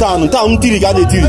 tánu tánu tìrì ká lè tìrì.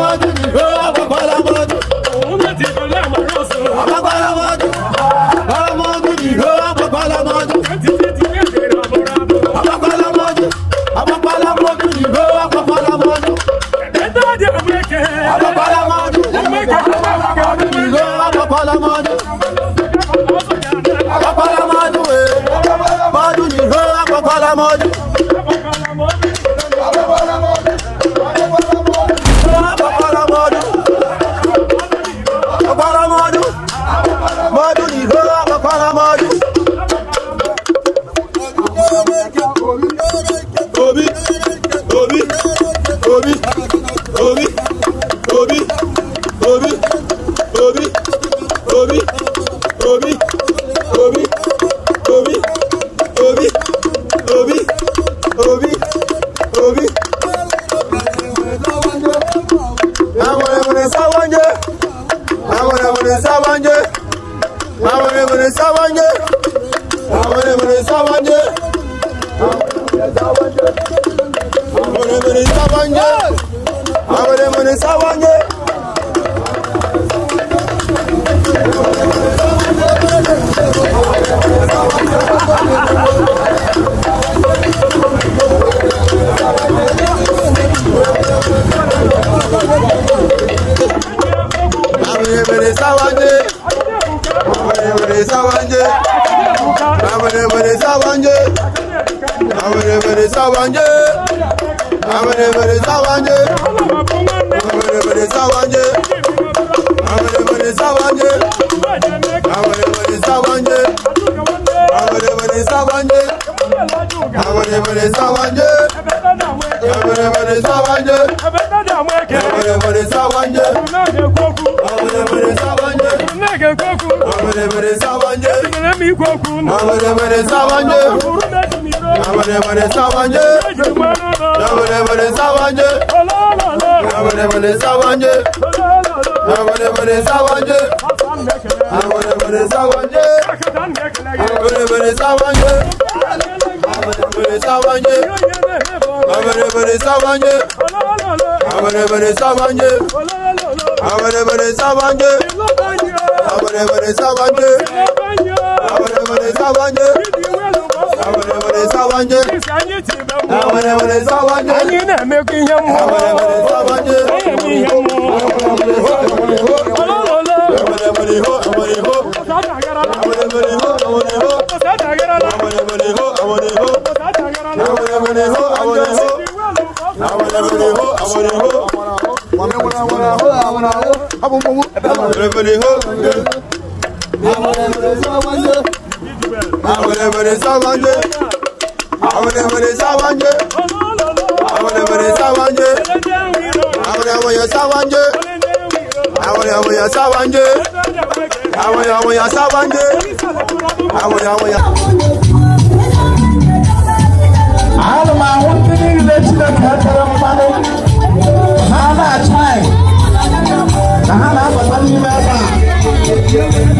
Babacım sawanye àwọn èmèrè sawanye àwọn èmèrè sawanye. awere were sawanje awere were sawanje awere were sawanje awere were sawanje awere were sawanje awere were sawanje awere were sawanje awere were sawanje awere were sawanje awere were sawanje awere were sawanje awere were sawanje Nabadabade Savanje Nabadabade Savanje Nabadabade Savanje Nabadabade Savanje Nabadabade Savanje Nabadabade Savanje Nabadabade Savanje Nabadabade Savanje Nabadabade Savanje Nabadabade Savanje Abone bone sabancı. Abone bone sabancı. Abone bone sabancı. Abone bone sabancı. Abone bone sabancı. Anyine mekinyam. Abone bone sabancı. Anyine I want to hold, I want to hold. abomowó. Àbọ̀dẹ̀bọ̀dẹ̀ hó. Àbọ̀dẹ̀bọ̀dẹ̀ sáwájé. Àbọ̀dẹ̀bọ̀dẹ̀ sáwájé. Àbọ̀dẹ̀bọ̀dẹ̀ sáwájé. Àbọ̀dẹ̀bọ̀dẹ̀ sáwájé. Àbọ̀dẹ̀bọ̀dẹ̀ sáwájé. Àbọ̀dẹ̀bọ̀dẹ̀ sáwájé. Àbọ̀dẹ̀bọ̀dẹ̀ sáwájé. Àbọ̀dẹ̀bọ̀dẹ̀. Alma, what do you need to let you know?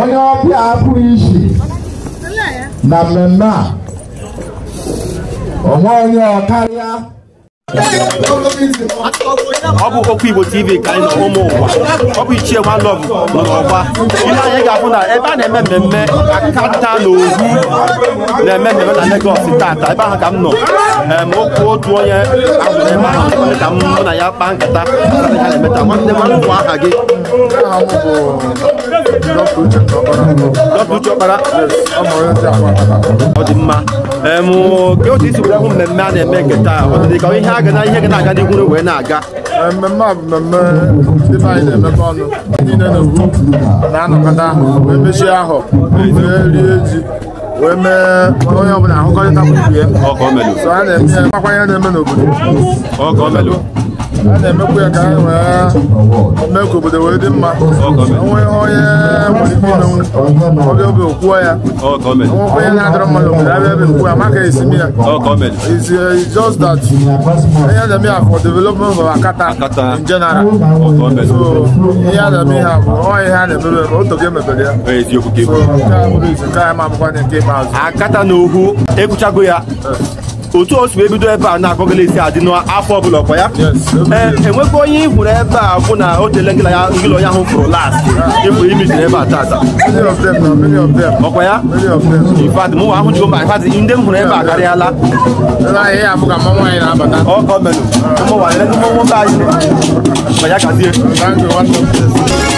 onye ọbịa apụghị isi na mmemme a onwe onye ọ karịa ọ bụ okwu igbo tv ka anyị nọ ụmụ ụwa ọ bụ ichie nwa lọv nọ n'ọgba ihe anyị ga-afụ na ebe a na-eme mmemme akata na ohu na-eme mmemme na legos tata ebe ahụ ka m nọ okwu otu onye ahụ ebe ahụ ka m mụ na ya kpaa nkata ya na-emeta nwanne nwanne nwa aha gị ọ dị mma otu isi were ụmụ mmemme a na-eme nke taa ọ ihe a ga na ihe ga na-aga wee na-aga mmemme a bụ mmemme ndị anyị na-emekọ ọnụ ndị niile na-ewu na-anọkọta wee mechie ahụ wee rie ji wee mee onye ọbụla ahụkọrịta gburugburu ya a na-eme n'obodo a na-emekwu ya ka anyị wee mee ka obodo wee dị mma onwe onye nwere ike imenwu oge oge okwuo ya nwekwa onye na-adọrọ mmadụ obodo abịa ebe nkwu ya maka esi m ya is uh, just that ihe na-eme ya for development of Akata in general so ihe a na-eme ihe a bụ ọ ihe a na-emebe otoge emebere ya so nke a bụrụ izu nke anyị ma abụkwa nke ikpeazụ Akata na Ohu ekwuchago ya eh. otu o si ebido ebe a na-akọgala esi adị n'afọ ọbụla ọkwa ya e enwekwa onye ịhụrụ ebe a bụ na o tele ngịla onye ahụ fụrụ last ịfụrụ imijiri ebe a tata ọkwa ya ifad mụnwa ahụ jigo mba ifad ndị m hụrụ ebe a karịala ọkọ menụ ụmụ nwaanyị ndị nwoke anyị ọkwa ya kazie